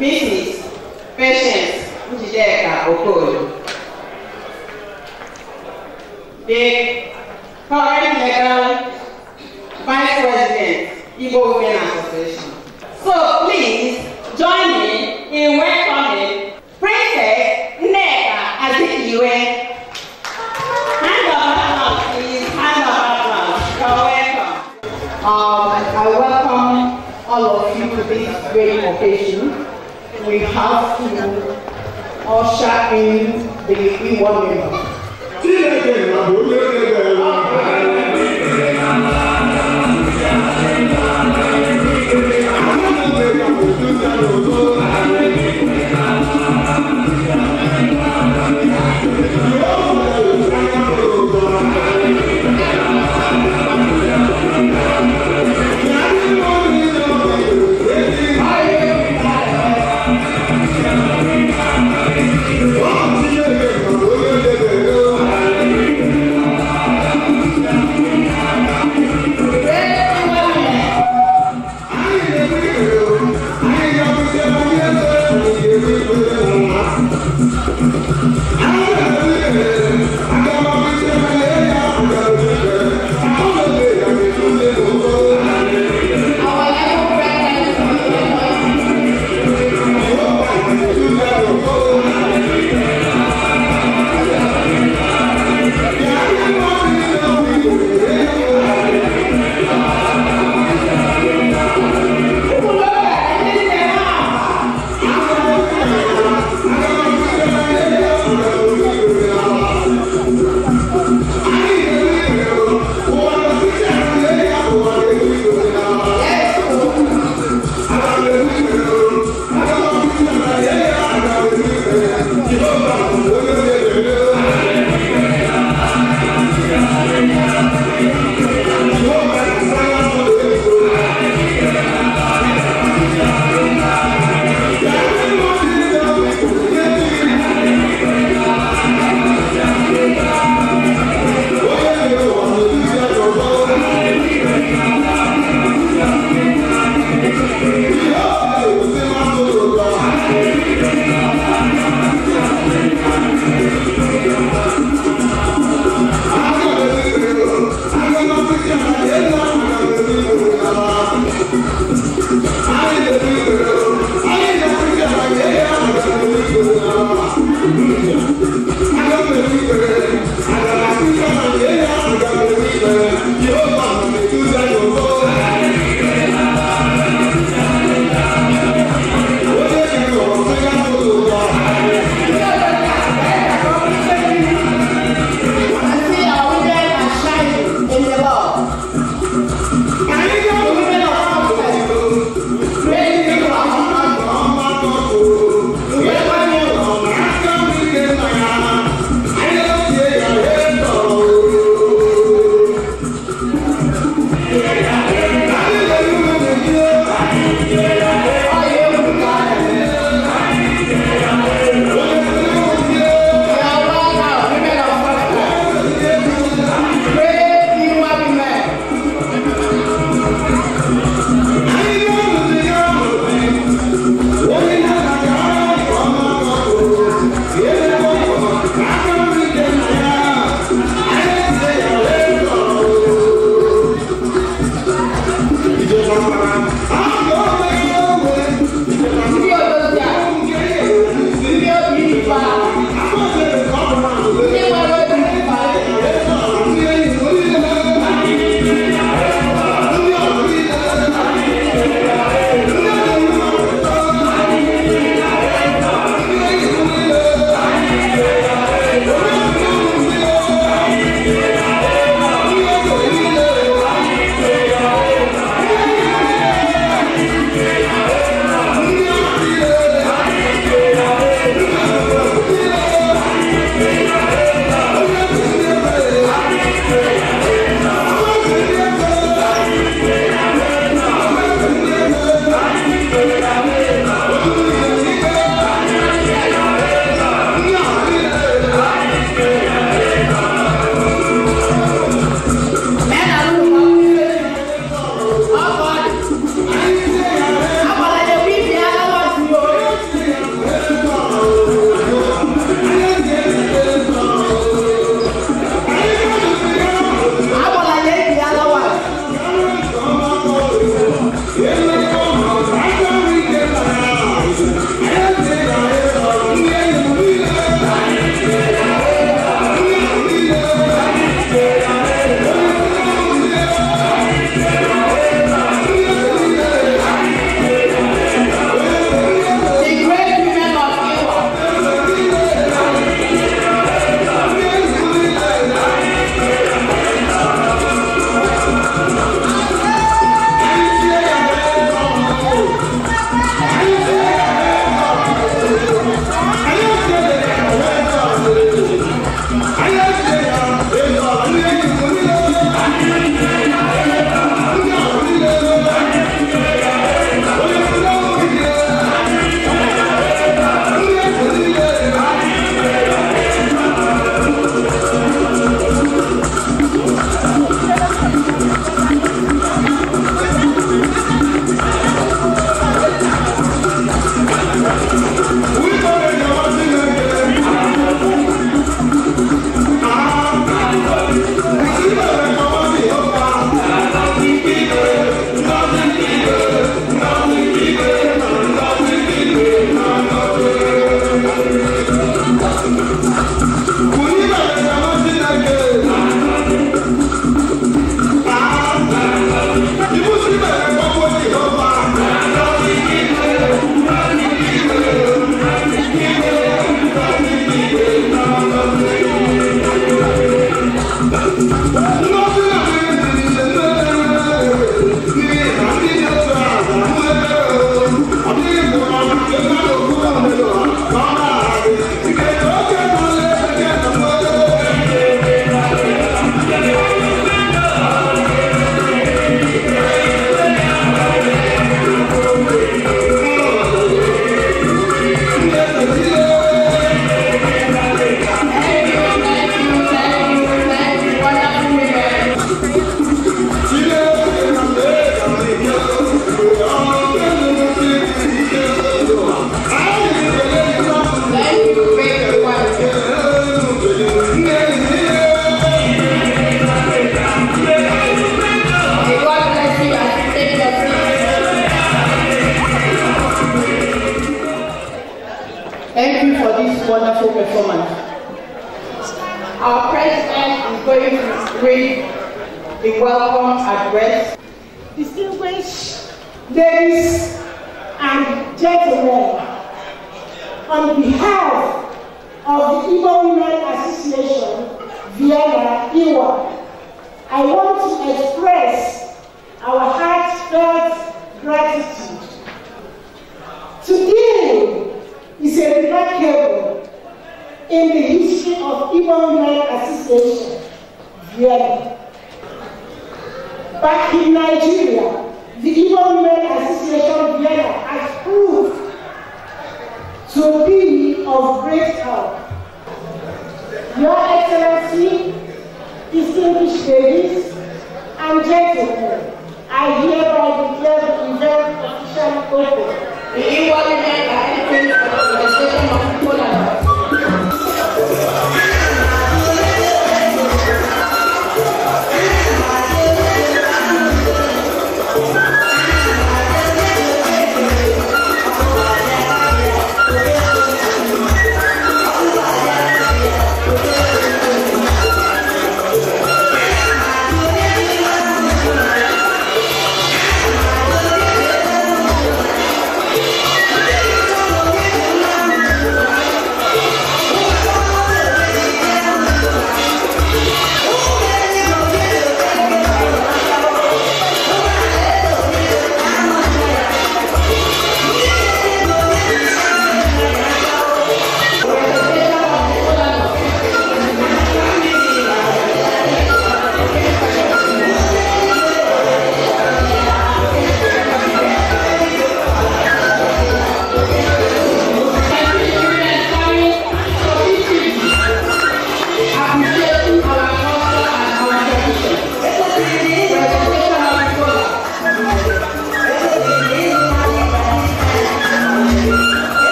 Mrs. Patience Njideka Okoyo. The current legal vice president, Igbo Women Association. So please join me in welcoming Princess Nneka Azikiwe Um, I welcome all of you to this great occasion. we have to usher in the e-warning.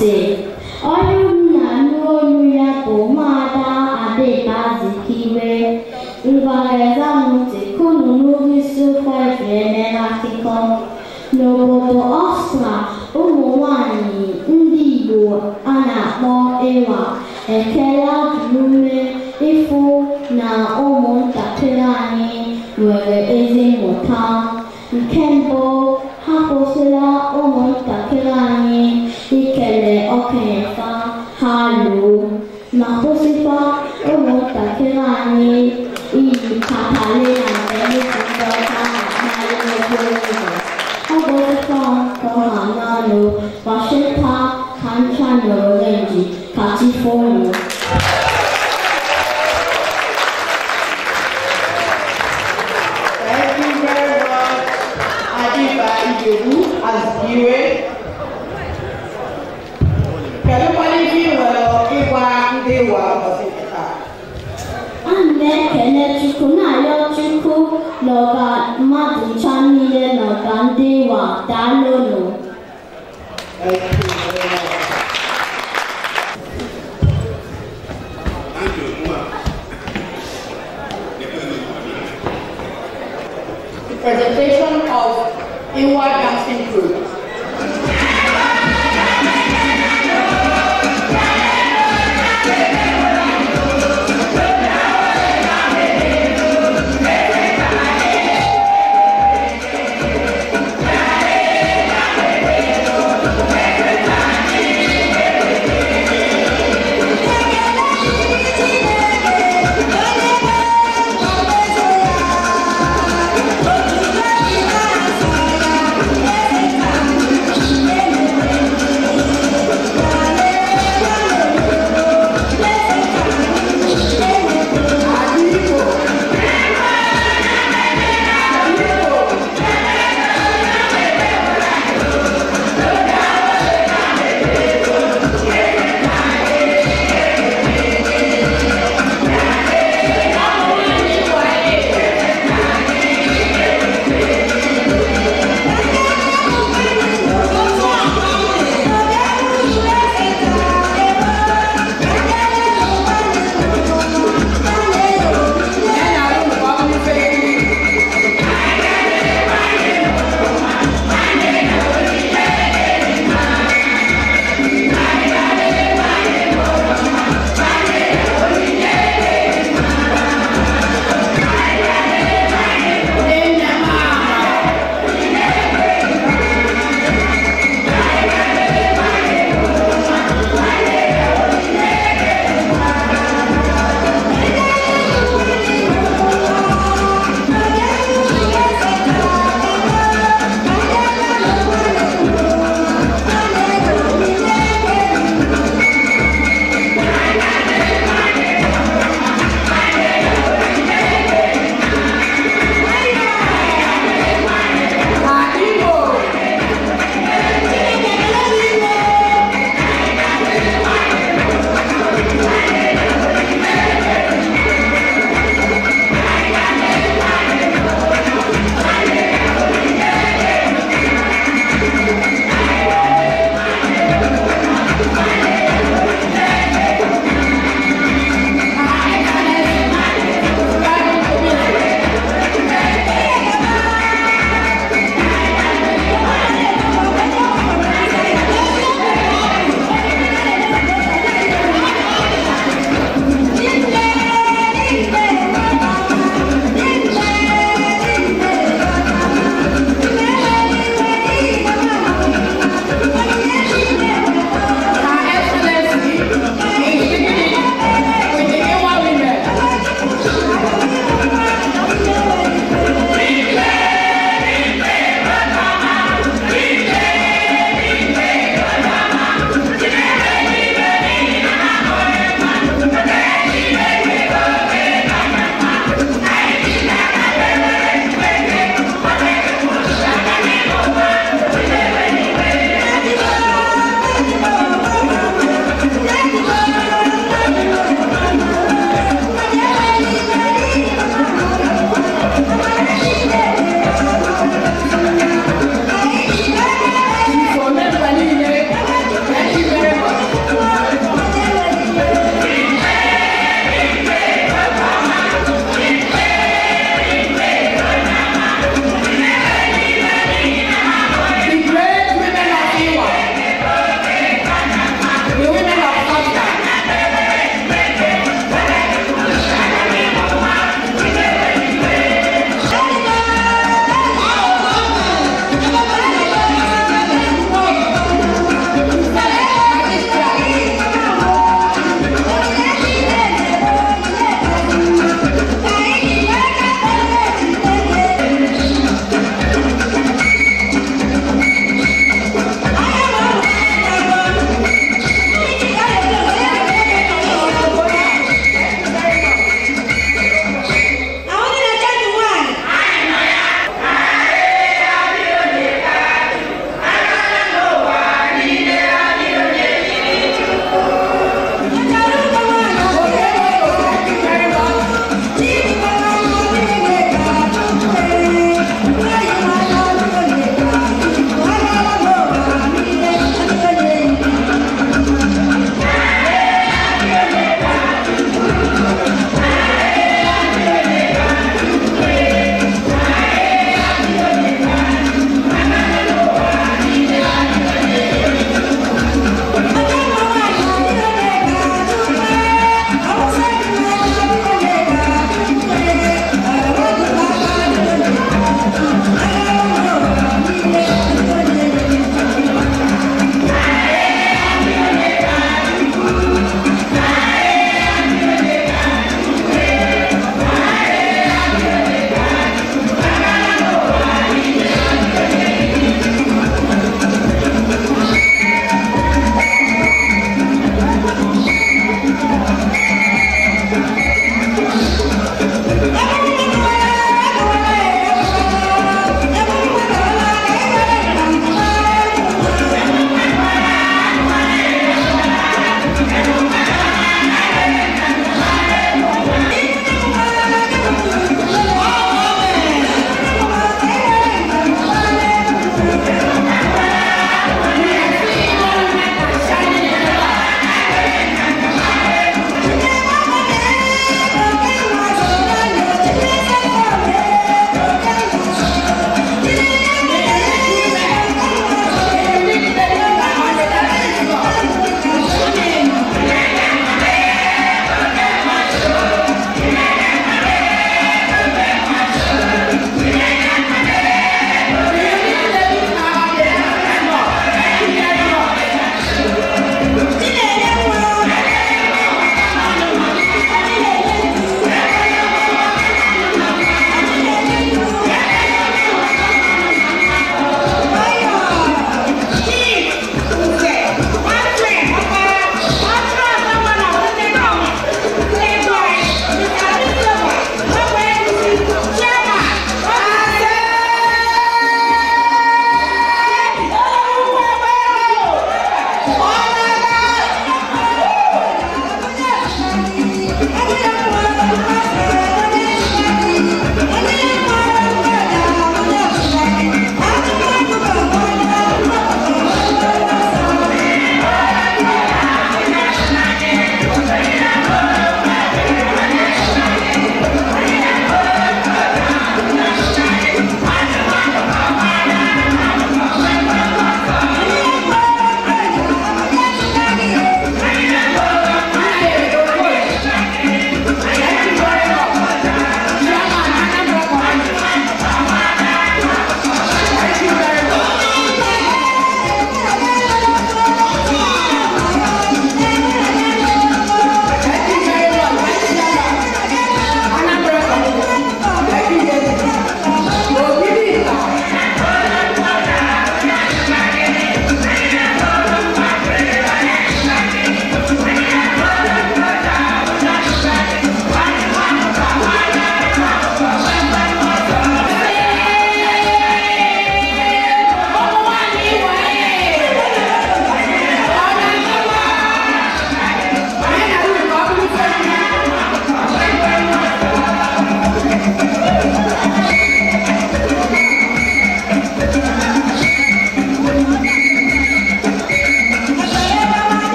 sị onye nna n'olu ya bụ ụmụada adịba zikiwe ngwagazamụti kunu n'ugwu isi ụkwa eji eme n'akụkọ n'obodo ọstra ụmụ nwanyị ndị igbo a na-akpọ ịwa ekele ajụume ịfụ na ụmụntakịrị anyị nwere ezi mmụta nke mbụ ha kwụsịla